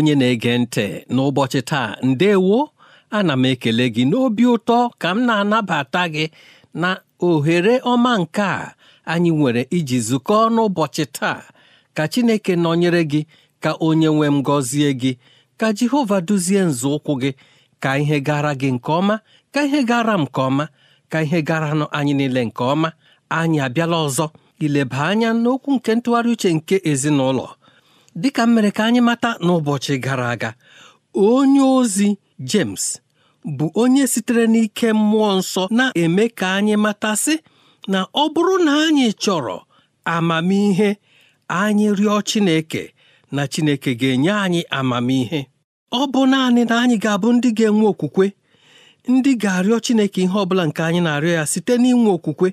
onye na-ege ntị n'ụbọchị taa ndewo ana m ekele gị n'obi ụtọ ka m na-anabata gị na ohere ọma nke a anyị nwere iji zukọọ n'ụbọchị taa ka Chineke nọnyere gị ka onye nwe m gọzie gị ka Jehova duzie nzọụkwụ gị ka ihe gara gị nke ọma ka ihe gara m nke ọma ka ihe gara anyị niile nke ọma anyị abịala ọzọ ileba anya n'okwu nke ntụgharị uche nke ezinụlọ dịka m mere ka anyị mata n'ụbọchị gara aga onye ozi James bụ onye sitere n'ike mmụọ nsọ na-eme ka anyị matasị na ọ bụrụ na anyị chọrọ amamihe anyị rịọ Chineke na Chineke ga-enye anyị amamihe ọ bụ naanị na anyị ga-abụ ndị ga-enwe okwukwe ndị ga-arịọ Chineke ihe ọbụla nke anyị na-arịọ ya site n'inwe okwukwe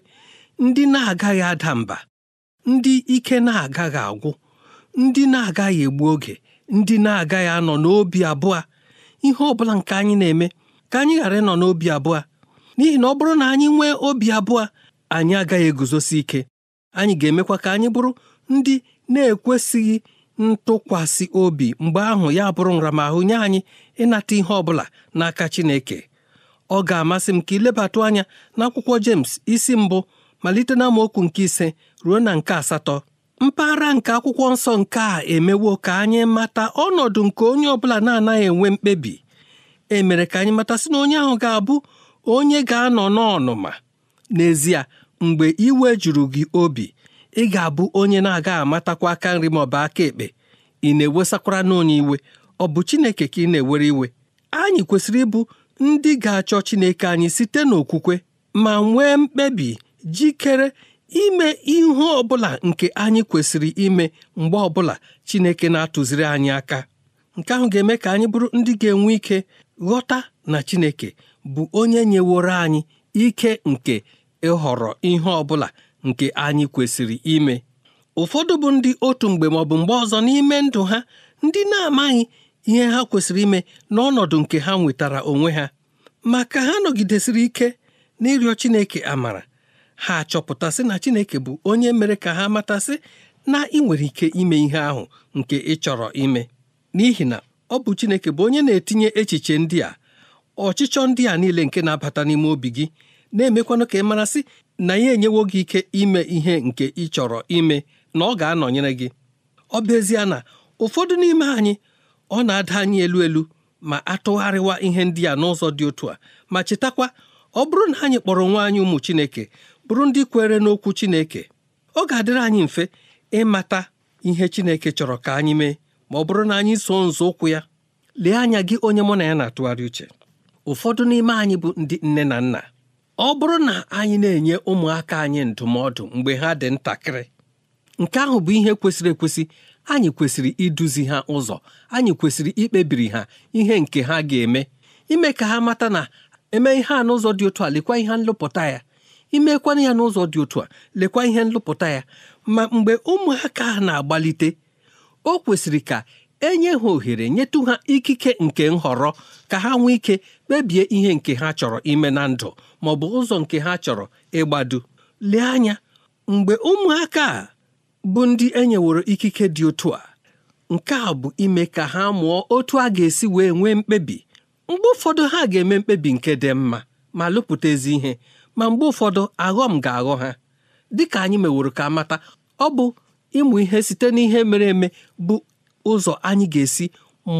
ndị na-agaghị ada mba ndị ike na-agaghị agwụ ndị na-agaghị egbu oge ndị na-agaghị anọ n'obi abụọ ihe ọbụla nke anyị na-eme ka anyị ghara ịnọ n'obi abụọ n'ihi na ọ bụrụ na anyị nwee obi abụọ anyị agaghị eguzosi ike anyị ga-emekwa ka anyị bụrụ ndị na-ekwesịghị ntụkwasị obi mgbe ahụ ya bụrụ nramahụ nye anyị ịnata ihe ọ bụla n'aka Chineke ọ ga-amasị m ka ilebatụ anya n'akwụkwọ James isi mbụ malite na nke ise ruo na nke asatọ mpaghara nke akwụkwọ nsọ nke a emewo ka anyị mata ọnọdụ nke onye ọbụla na-anaghị enwe mkpebi e mere ka anyị mata sị na onye ahụ ga-abụ onye ga-anọ n'ọnụma n'ezie mgbe iwe juru gị obi ị ga-abụ onye na-aga amatakwa aka nri ma ọ bụ aka ekpe ị na-ewesakwara n'onye iwe ọ bụ Chineke ka ị na-ewere iwe anyị kwesịrị ịbụ ndị ga-achọ Chineke anyị site n'okwukwe ma nwee mkpebi jikere ime ihe ọbụla nke anyị kwesịrị ime mgbe ọbụla Chineke na-atụziri anyị aka nke ahụ ga-eme ka anyị bụrụ ndị ga-enwe ike ghọta na Chineke bụ onye nyeworo anyị ike nke ịhọrọ ihe ọbụla nke anyị kwesịrị ime ụfọdụ bụ ndị otu mgbe ma ọ bụ mgbe ọzọ n'ime ndụ ha ndị na-amaghị ihe ha kwesịrị ime n'ọnọdụ nke ha nwetara onwe ha ma ka ha nọgidesịrị ike n'ịrịọ Chineke amara ha sị na Chineke bụ onye mere ka ha matasị na ị nwere ike ime ihe ahụ nke ị chọrọ ime n'ihi na ọ bụ Chineke bụ onye na-etinye echiche ndị a ọchịchọ ndị a niile nke na-abata n'ime obi gị na-emekwanụ ka ị marasị na ya enyewo gị ike ime ihe nke ị chọrọ ime na ọ ga-anọnyere gị ọ bụ ezie na ụfọdụ n'ime anyị ọ na-ada anyị elu elu ma atụgharịwa ihe ndị a n'ụzọ dị otu a ma chetakwa ọ bụrụ na anyị kpọrọ nwa anyị ụmụ Chineke bụrụ ndị kwere n'okwu Chineke ọ ga-adịrị anyị mfe ịmata ihe Chineke chọrọ ka anyị mee ma ọ bụrụ na anyị so nzọ ụkwụ ya lee anya gị onye mụ na ya na-atụgharị uche ụfọdụ n'ime anyị bụ ndị nne na nna ọ bụrụ na anyị na-enye ụmụaka anyị ndụmọdụ mgbe ha dị ntakịrị nke ahụ bụ ihe kwesịrị ekwesị anyị kwesịrị iduzi ha ụzọ anyị kwesịrị ikpebiri ha ihe nke ha ga-eme ime ka ha mata na eme ihe a n'ụzọ dị otu a lekwa ihe nlụpụta ya imekwana ya n'ụzọ dị otu a lekwa ihe nlụpụta ya ma mgbe ụmụaka na-agbalite o kwesịrị ka enye ha ohere nyetụ ha ikike nke nhọrọ ka ha nwee ike kpebie ihe nke ha chọrọ ime na ndụ ma ọ bụ ụzọ nke ha chọrọ ịgbado lee anya mgbe ụmụaka a bụ ndị enyeworo ikike dị otu a nke a bụ ime ka ha mụọ otu a ga-esi wee nwee mkpebi mgbe ụfọdụ ha ga-eme mkpebi nke dị mma ma lụpụta ezi ihe ma mgbe ụfọdụ aghọm ga-aghọ ha dịka anyị meworo ka mata ọ bụ ịmụ ihe site n'ihe mere eme bụ ụzọ anyị ga-esi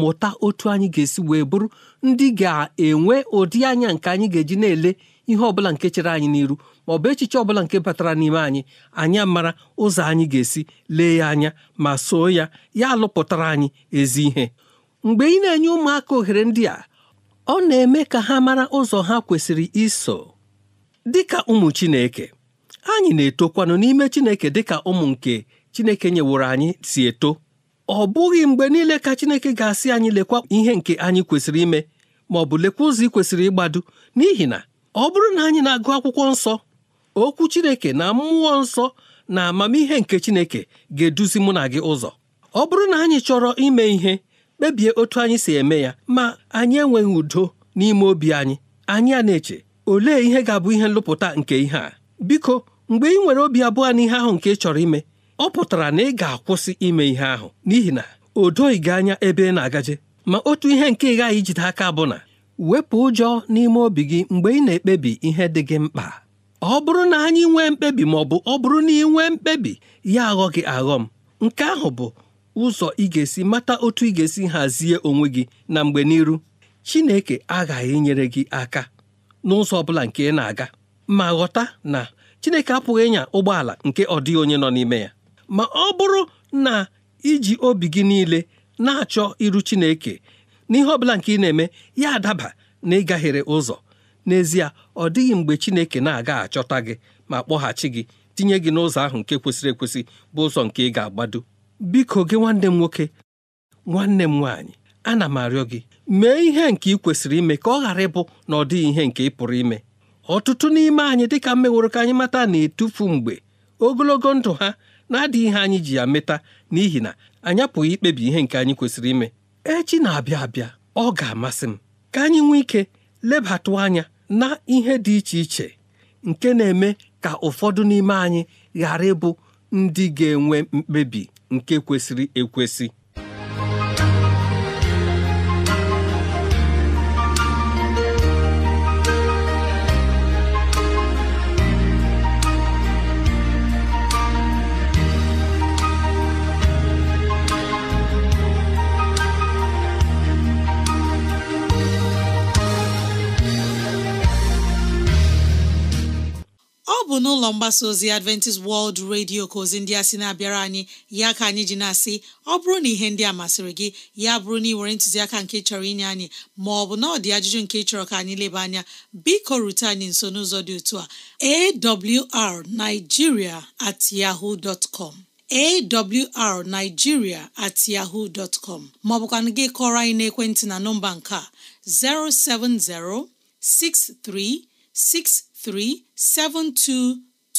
mụta otu anyị ga-esi wee bụrụ ndị ga-enwe ụdị anya nke anyị ga-eji na-ele ihe ọbụla nke chere anyị n'iru ma ọ bụ echiche ọbụla nke batara n'ime anyị anyị mara ụzọ anyị ga-esi lee ya anya ma soo ya ya alụpụtara anyị ezi ihe mgbe ị na-enye ụmụaka ohere ndị a ọ na-eme ka ha mara ụzọ ha kwesịrị iso dịka ụmụ Chineke anyị na-etokwanụ n'ime Chineke dịka ụmụ nke Chineke nyeworo anyị si eto ọ bụghị mgbe niile ka Chineke ga-asị anyị lekwa ihe nke anyị kwesịrị ime ma ọ bụ lekwa ụzọ ị kwesịrị ịgbado n'ihi na ọ bụrụ na anyị na-agụ akwụkwọ nsọ okwu Chineke na mmụọ nsọ na amamihe nke Chineke ga-eduzi mụ na gị ụzọ ọ bụrụ na anyị chọrọ ime ihe kpebie otu anyị si eme ya ma anyị enweghị udo n'ime obi anyị anyị a na-eche olee ihe ga-abụ ihe nlụpụta nke ihe a biko mgbe ị nwere obi abụọ n'ihe ahụ nke ị chọrọ ime ọ pụtara na ị ga-akwụsị ime ihe ahụ n'ihi na o doghị anya ebe ị na-agaje ma otu ihe nke ị gaghị ijide aka bụ na wepụ ụjọ n'ime obi gị mgbe ị na-ekpebi ihe dị gị mkpa ọ bụrụ na anyị nwee mkpebi ma ọ bụ ọ bụrụ na ị nwee mkpebi ya aghọ gị aghọ m nke ahụ bụ ụzọ ị ga-esi mata otu ị ga-esi hazie onwe gị na mgbe n'iru Chineke aghaghị inyere gị aka n'ụzọ ọ bụla nke ị na-aga ma ghọta na Chineke apụghị ịnya ụgbọala nke ọ dịghị onye nọ n'ime ya ma ọ bụrụ na iji obi gị niile na-achọ iru Chineke n'ihe ọ bụla nke ị na-eme ya adaba na ịgaghere ụzọ n'ezie ọ dịghị mgbe Chineke na-aga achọta gị ma kpọghachi gị tinye gị n'ụzọ ahụ nke kwesịrị ekwesị bụ ụzọ nke ị ga-agbado biko gị nwanne m nwoke nwanne m nwaanyị ana m arịọ gị mee ihe nke ị kwesịrị ime ka ọ ghara ịbụ na ọ dịghị ihe nke ị pụrụ ime ọtụtụ n'ime anyị dịka mmeworo ka anyị mata na-etufu mgbe ogologo ndụ ha na-adịghị ihe anyị ji ya meta n'ihi na anyị apụghị ikpebi ihe nke anyị kwesịrị ime echi na-abịa abịa ọ ga-amasị m ka anyị nwee ike lebatụ anya na ihe dị iche iche nke na-eme ka ụfọdụ n'ime anyị ghara ịbụ ndị ga-enwe mkpebi nke kwesịrị ekwesị ụlọ mgbasa ozi adventist world radio ka ozi ndị a sị na-abịara anyị ya ka anyị ji na-asị ọ bụrụ na ihe ndị a masịrị gị ya bụrụ na ị nwere ntụziaka nke chọrọ inye anyị ma ọ bụ na ọ dị ajụjụ nke chọrọ ka anyị leba anya biko rute anyị nso n'ụzọ dị otu a awrnigeria at yahoo dot com awrnigeria at yahoo dot com maọbụ ka gị kọrọ anyị n'ekwentị na nọmba nke a 070 6363 72 07063637224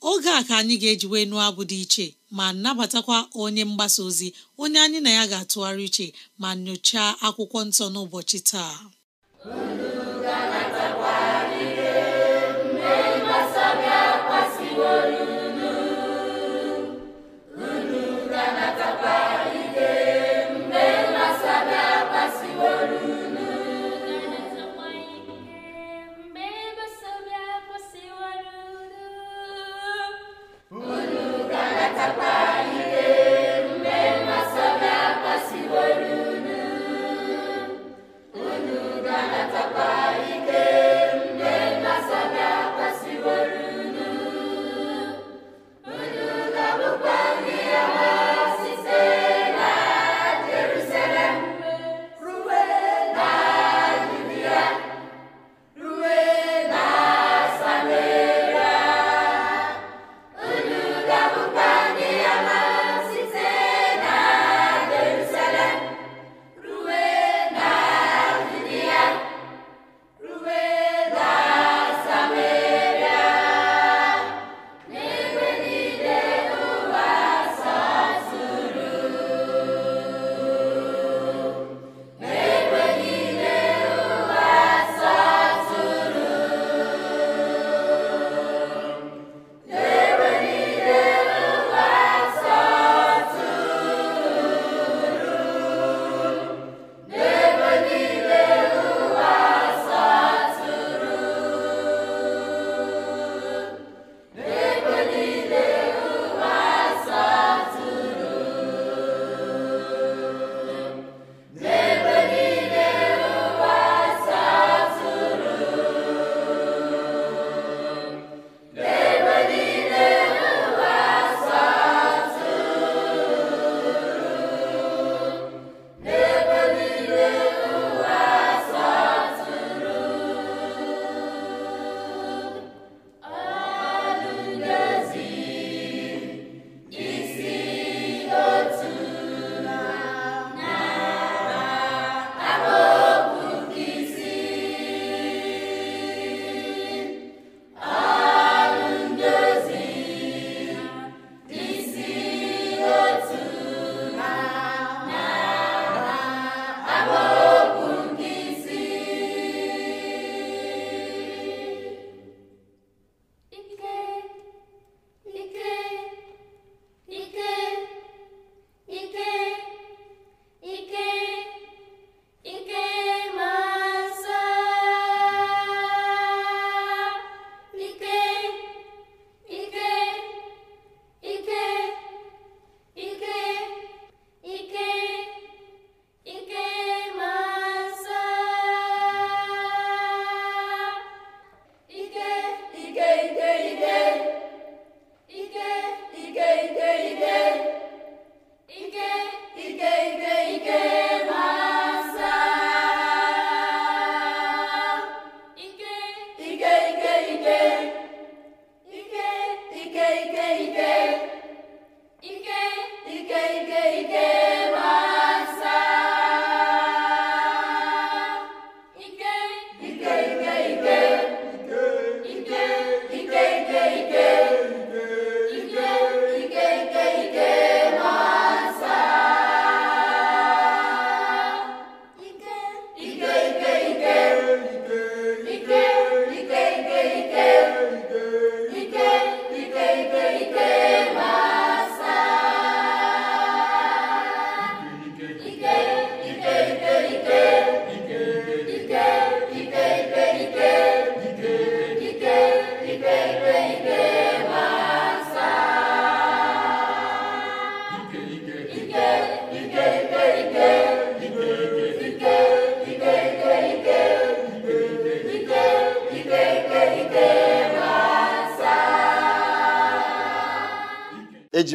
oge a ka anyị ga-eji nụọ abụ dị iche ma nabatakwa onye mgbasa ozi onye anyị na ya ga-atụgharị iche ma nyochaa akwụkwọ nsọ n'ụbọchị taa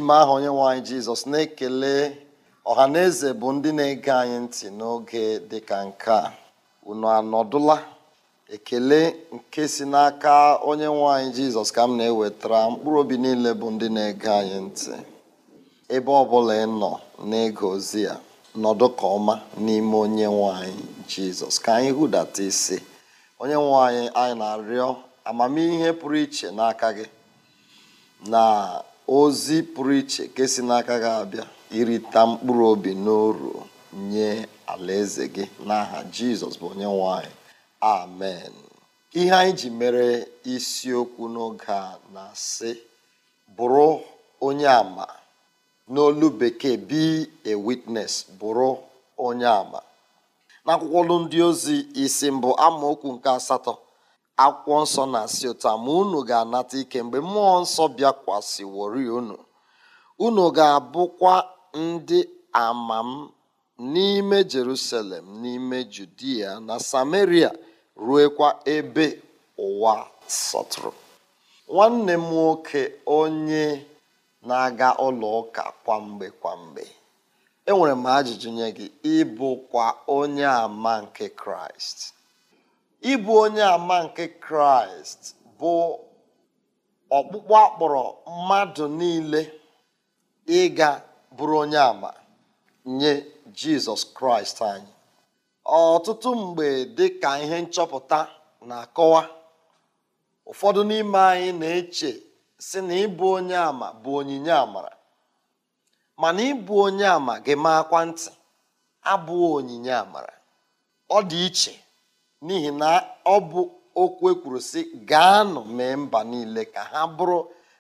n'ime aha onyenwe anyị jizọs na-ekele ọha na eze bụ ndị na-ege anyị ntị n'oge dịka nke a unu anọdụla ekele nke si n'aka onye nwanyị jizọs ka m na-ewetara mkpụrụ obi niile bụ ndị na-ege anyị ntị ebe ọ bụla ị nọ n'ịga ozi ya nọdụ ka ọma n'ime onye nwanyị jizọs ka anyị hụdata isi onye anyị anyị na-arịọ amamihe pụrụ iche n'aka gị na ozi pụrụ iche nke si n'aka gị abịa irita mkpụrụ obi n'uru nye alaeze gị n'aha jizọs bụ onye nwanyị amen ihe anyị ji mere isiokwu n'oge a na-asị bụrụ onye ama n'olu bekee be a witness bụrụ onye ama n'akwụkwọ ndị ozi isi mbụ amaokwu nke asatọ akwụkwọ nsọ na-asị ụta ma unu ga-anata ike mgbe mmụọ nsọ bịakwasị wori unu unu ga-abụkwa ndị ama m n'ime jerusalem n'ime judia na samaria ruokwa ebe ụwa sọtụrụ nwanne m nwoke onye na-aga ụlọ ụka kwamgbe kwamgbe enwere m ajụjụ nye gị ịbụkwa onye ama nke kraịst ịbụ onye ama nke kraịst bụ ọkpụkpọ akpọrọ mmadụ niile ịga bụrụ onye ama nye jizọs kraịst anyị ọtụtụ mgbe dị ka ihe nchọpụta na-akọwa ụfọdụ n'ime anyị na-eche si na ịbụ onye ama bụ onyinye amara mana ịbụ onye ama gị maakwa ntị abụọ onyinye amara ọ dị iche n'ihi na ọ bụ okwu ekwuru si gaa nọ mee mba niile ka ha bụrụ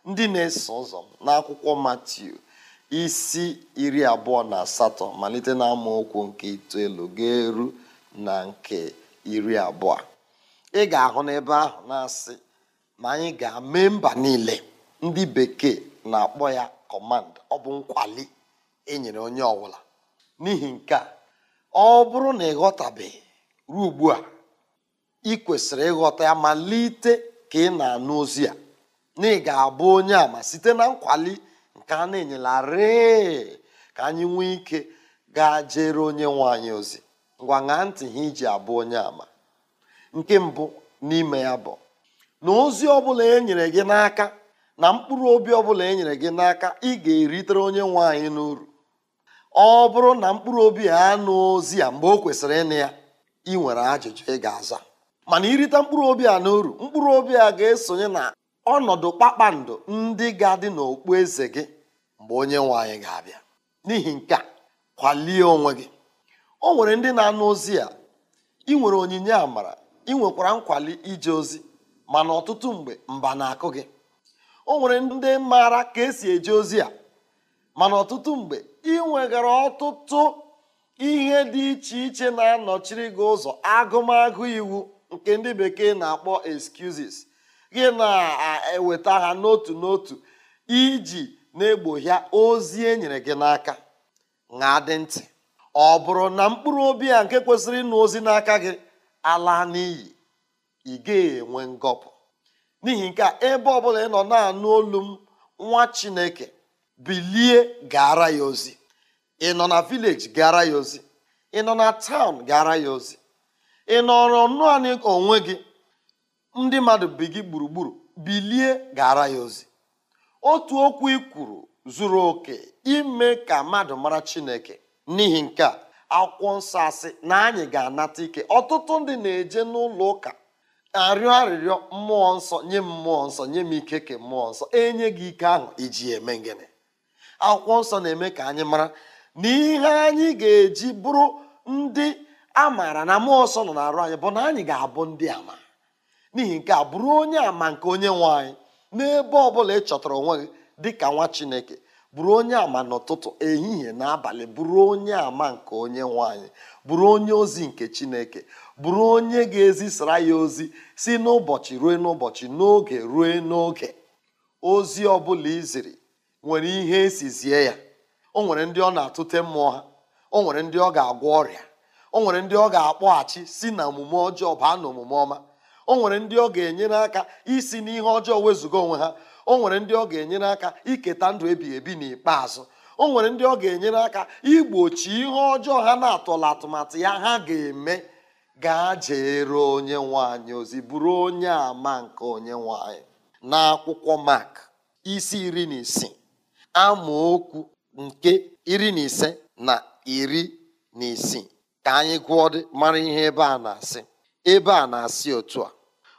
ndị na-eso ụzọ n'akwụkwọ Matiu isi iri abụọ na asatọ malite na okwu nke itoolu ga-eru na nke iri abụọ ị ga-ahụ n'ebe ahụ na-asị ma anyị ga-eme mba niile ndị bekee na-akpọ ya kọmand ọ bụ nkwali enyere onye ọbụla n'ihi nke a ọ bụrụ na ị ghọtabeghị ruo ugbu a ị kwesịrị ịghọta ya malite ka ị na-anụ ozi a na ị ga-abụ onye ama site na nkwali nke a na-enyelarị ka anyị nwee ike gaa jere onye nwe anyị ozi ngwa ṅaa ntị ha iji abụ onye ama nke mbụ n'ime ya bụ na ozi ọbụla e nyere gị n'aka na mkpụrụ obi ọbụla e nyere gị n'aka ị ga-eritere onye nwe anyị n'uru ọ bụrụ na mkpụrụ obi a anụ ozi a mgbe o kwesịrị ịnụ ya ị nwere ajụjụ ị ga-aza mana irite mkpụrụ obi a n'uru mkpụrụ obi a ga-esonye na ọnọdụ kpakpando ndị ga-adị n'okpu eze gị mgbe onye nwe anyị ga-abịa n'ihi nke a kwalie onwe gị o nwere ndị na-anụ ozi a ị nwere onyinye amara ị nwekwara nkwali ije ozi mana ọtụtụ mgbe mba na-akụ gị o nwere ndị maara ka esi eje ozi a mana ọtụtụ mgbe ị nwegara ọtụtụ ihe dị iche iche na-anọchiri gị ụzọ agụmagụ iwu nke ndị bekee na-akpọ excuses gị na-eweta ha n'otu n'otu iji na-egbohia ozi e nyere gị n'aka na dị ntị ọ bụrụ na mkpụrụ obi a nke kwesịrị ịnụ ozi n'aka gị ala n'iyi ị gaghị enwe ngọpụ n'ihi nke a ebe ọbụla ị nọ na-anụ olu m nwa chineke bilie gara ya ozi ị nọ na vileji gara ya ozi ị nọ na taụn gara ya ozi ị nọrọ naanị onwe gị ndị mmadụ bi gị gburugburu bilie gara ya ozi otu okwu ị kwuru zuru oke ime ka mmadụ mara chineke n'ihi nke a akwụkwọ nsọ asị na anyị ga-anata ike ọtụtụ ndị na-eje n'ụlọ ụka arịọ arịrịọ mmụọ nsọ nye mmụọ nsọ nye m ike ke mmụọ nsọ enye gị ike ahụ iji eme gịnị akwụkwọ nsọ na-eme ka anyị mara na ihe anyị ga-eji bụrụ ndị a maara na mmụọ ọsọ nọ na-arụ anyị bụ na anyị ga-abụ ndị ama n'ihi nke a bụrụ onye ama nke onye nwe anyị n'ebe ọ bụla ị chọtara onwe gị dị ka nwa chineke bụrụ onye ama n'ụtụtụ ehihie na abalị bụrụ onye ama nke onye nwanyị bụrụ onye ozi nke chineke bụrụ onye ga-ezisara ya ozi si n'ụbọchị ruo n'ụbọchị n'oge ruo n'oge ozi ọbụla iziri nwere ihe esizie ya o nwere ndị ọ na-atụte mmụọ ha o nwere ndị ọ ga-agwọ ọrịa o nwere ndị ọ ga-akpọghachi si na omume ọjọọ baa na omume ọma o nwere ndị ọ ga-enyere aka isi n'ihe ọjọọ wezụga onwe ha o nwere ndị ọ ga-enyere aka iketa ndụ ebighị ebi n'ikpeazụ o nwere ndị ọ ga-enyere aka igbochi ihe ọjọọ ha na-atọla atụmatụ ya ha ga-eme gaa jeere onye nwanyị ozi bụrụ onye ama nke onye nwanyị n'akwụkwọ Mak isi iri na isii amaokwu nke iri na ise na iri na isii ka anyị gụọ mara ihe ebe a na-asị ebe a na-asị otu a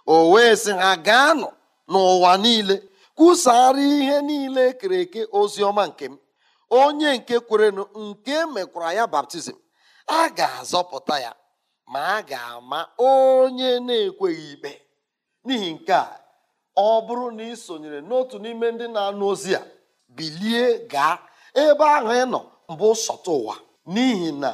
o wee sị ha gaanụ n'ụwa niile kwusara ihe niile e kere eke ozi ọma nke m onye nke kwerenụ nke e mekwara ya baptizim a ga-azọpụta ya ma a ga-ama onye na-ekweghị ikpe n'ihi nke a ọ bụrụ na ị sonyere n'otu n'ime ndị na-anụ ozi a bilie gaa ebe ahụ ị nọ mbụ sọta ụwa n'ihi na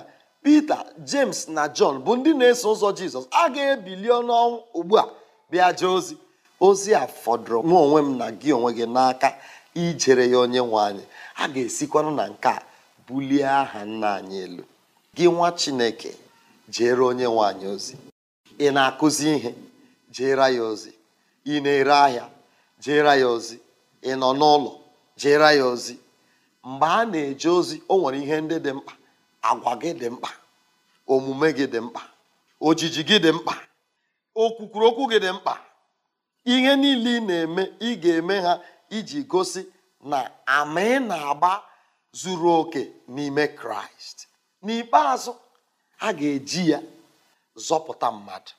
Pita James na John bụ ndị na-eso ụzọ Jizọs a ga-ebili ọnụọnwụ ugbu a bịa jee ozi ozi a fọdụrụ nwa onwe m na gị onwe gị n'aka ijere ya onye nwe anyị a ga-esikwanụ na nke a bulie aha nna anyị elu gị nwa Chineke jere onye nwe anyị ozi ị na-akụzi ihe jere ya ozi ị na-ere ahịa jere ya ozi ị nọ n'ụlọ jere ya ozi mgbe a na-eje ozi o nwere ihe ndị dị mkpa agwa gị dị mkpa omume gị dị mkpa ojiji gị dị mkpa okwukwuru okwu gị dị mkpa ihe niile ị na-eme ị ga-eme ha iji gosi na ama ị na-agba zuru oke n'ime kraịst n'ikpeazụ ha ga-eji ya zọpụta mmadụ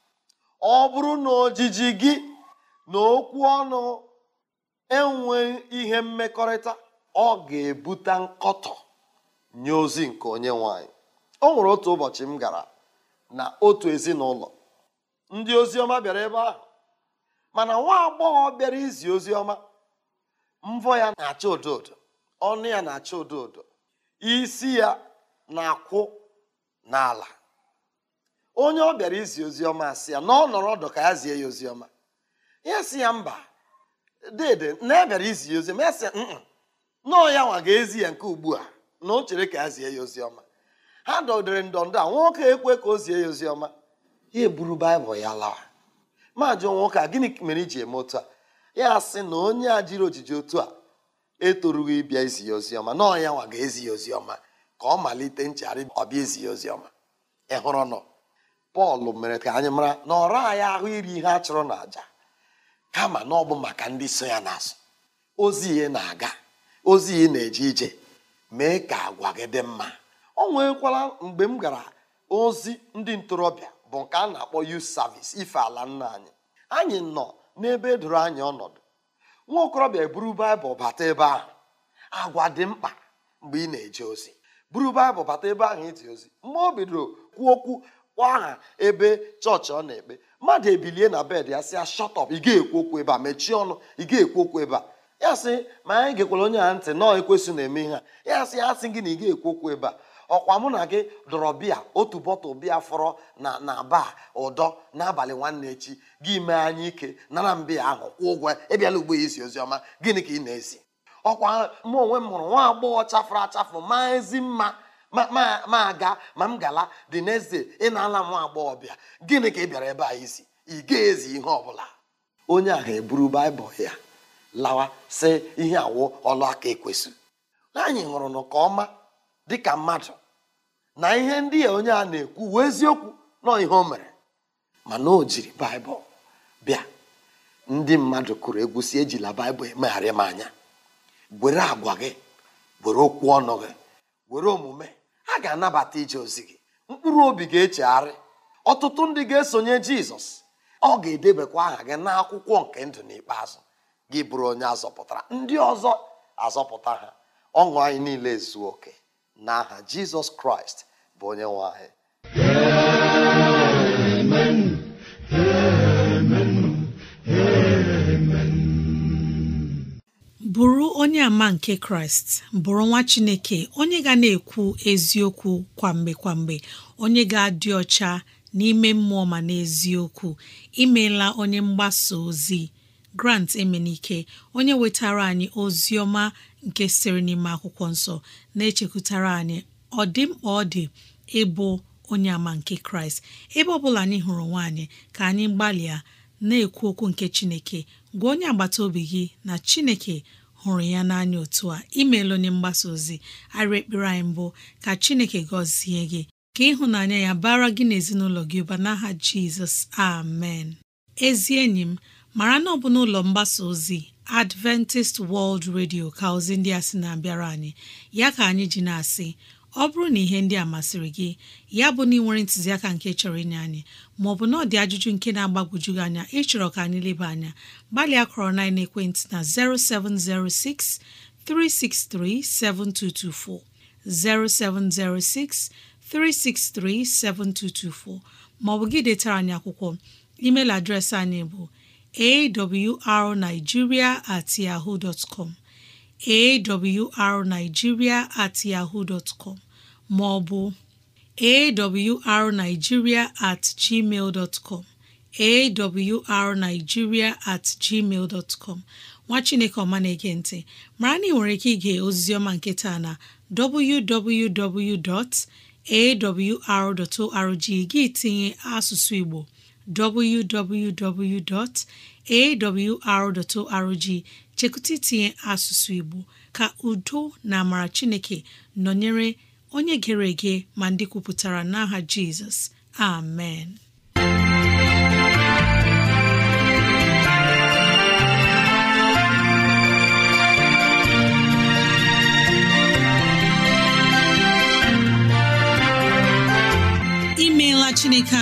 ọ bụrụ na ojiji gị na okwu ọnụ enweghị ihe mmekọrịta ọ ga-ebute nkọtọ nye ozi nke onye nwanyị o nwere otu ụbọchị m gara na otu ezinụlọ ndị ọma bịara ebe ahụ mana nwa agbọghọ bịara izi ọma mvọ ya na-acha odo ọnụ ya na-acha odo odo isi ya na-akwụ n'ala onye ọ bịara izi oziọma si ya na ọ nọrọ ọdụ ka ya zie ya ọma ya si ya mba dede na ya e bịara izi ya oziọma ya si ya nnọọ ya nwa ga-ezi ya nke ugbu a na o chere ka a zie ya oziọma ha dọdịrị ndọndọ a nwoke ekwe ka o zie ya oziọma ya eburu baịbụl ya lawa majụ nwoke a gịnị mere iji eme otu a ya sị na onye a jiri ojiji otu a etorugo ịbịa izi ya oziọma na ọnya nwa ga-ezi ya oziọma ka ọ malite nchegharị ọbịa ezi ya oziọma ị hụrụ nọ pọl mere ka anyị mara na ọra anyị ahụ iri ihe a chụrụ n'àjà kama na ọ bụ maka ndị so ya n'azụ ozi ihe na-aga ozi ihe na-eje ije mee ka agwa gị dị mma o nwekwara mgbe m gara ozi ndị ntorobịa bụ nke a na-akpọ youth service ife ala nna anyị anyị nọ n'ebe doro anyị ọnọdụ nwa okorobịa eburu baịbụl bata ebe ahụ agwa dị mkpa mgbe ị na-eje ozi buru baịbụl bata ebe ahụ ịdị ozi mgbe o bidoro kwuo okwu kpọọ aha ebe chọọchị ọ na-ekpe mmadụ ebilie na bed ya sị ya shọtọp ị ga-ekwu okwu ebe a mechie ọnụ ị ga-ekwu okwu ebe a ya sị ma anyị gekwara onye a ntị nọọ ekwesị na-eme ihe a ya sị ya sị gị na ị ga-ekwu okwu ebe a ọkwa mụ na gị dọrọ bịa otu bọtụl bịa fọrọ na na ba ụdọ n'abalị nwanne echi gị mee anyị ike nara mbịa ahụ kwụ ụgwọ ịbịala ugbo ya isi ozi ọma gịnị ka ị na ezi ọkwa mụ onwe m hụrụ nwa agbọghọ chafụrụ achafụ maa ezi mma ma aga ma m gala dị n'eze ị na-ala nwa agbọghọ bịa gịnị ka ị bịara ebe a izi ị ga-ezi ihe ọ bụla onye a ga-eburu baịbụl ya lawa si ihe awụ ọlụ aka anyị hụrụ nke ọma dịka mmadụ na ihe ndị ya onye a na-ekwu wee eziokwu nọ ihe o mere mana o jiri baịbụl bịa ndị mmadụ kụrụ egwu si ejila baịbụl emegharị m anya were agwa gị were okwu ọnụ gị were omume a ga-anabata ije ozi gị mkpụrụ obi ga-echegharị ọtụtụ ndị ga-esonye jizọs ọ ga-edebekwa aha gị n'akwụkwọ nke ndụ n'ikpeazụ gị bụrụ onye azọpụtara ndị ọzọ azọpụta ha ọṅụ anyị niile zuo oke n'aha jizọs kraịst bụ onye nwe anyị amen amen amen bụrụ onye ama nke kraịst bụrụ nwa chineke onye ga na-ekwu eziokwu kwamgbe kwamgbe onye ga-adị ọcha n'ime mmụọ ma n'eziokwu imela onye mgbasa ozi grant emenike onye wetara anyị ozi ọma nke siri n'ime akwụkwọ nsọ na-echekwutara anyị ọ dị mkpa ọ dị ịbụ onye ama nke kraịst ebe ọ bụla anyị hụrụ nwaanyị ka anyị gbalịa na-ekwu okwu nke chineke gwa onye agbata obi gị na chineke hụrụ ya n'anya otu a imeela onye mgbasa ozi arịa ekpere anyị mbụ ka chineke gọzie gị ka ịhụnanya ya bara gị na ezinụlọ gị ụba n'aha jizọs amen ezi enyi m mara na ọ bụ n'ụlọ mgbasa ozi Adventist World Radio ka ozi ndị a sị na-abịara anyị ya ka anyị ji na-asị ọ bụrụ na ihe ndị a masịrị gị ya bụ na ị nwere ntụziaka nke chọrọ inye anyị maọbụ na ọ dị ajụjụ nke na-agbagwoju gị anya ịchọrọ ka anyị leba anya gbalịa kọrọ na ekwentị na 0706 363 7224 0706 363 7224 maọbụ gị detara anyị akwụkwọ emeil adreesị anyị bụ awrnigeria at yahoo dot com at yahoo dot com ma ọ bụ awrnigeria at gmail dot com at gmail dot nwa chineke ọma na-ege ntị mara na ị nwere ike ige oziziọma nke taa na www.awr.org gị tinye asụsụ Igbo www.awr.org chekụta itinye asụsụ Igbo ka udo na amara Chineke nọnyere onye gere ege ma ndị kwupụtara n'aha Jizọs amen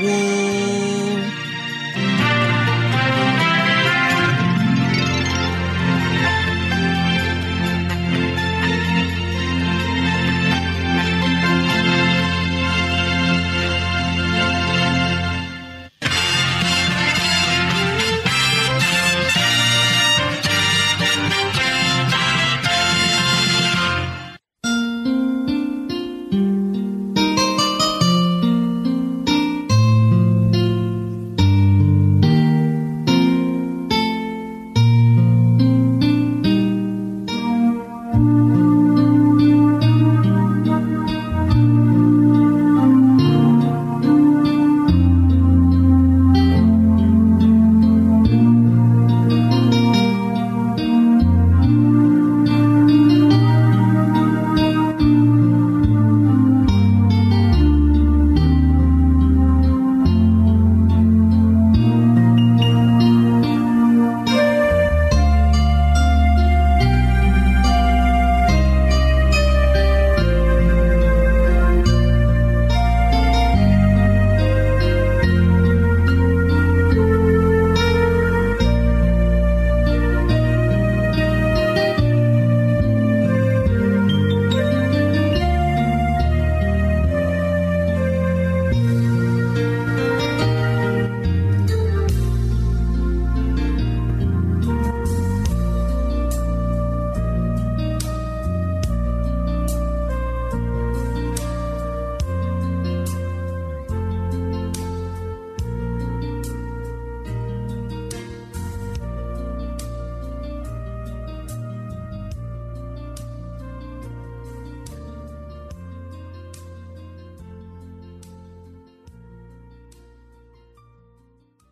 woo!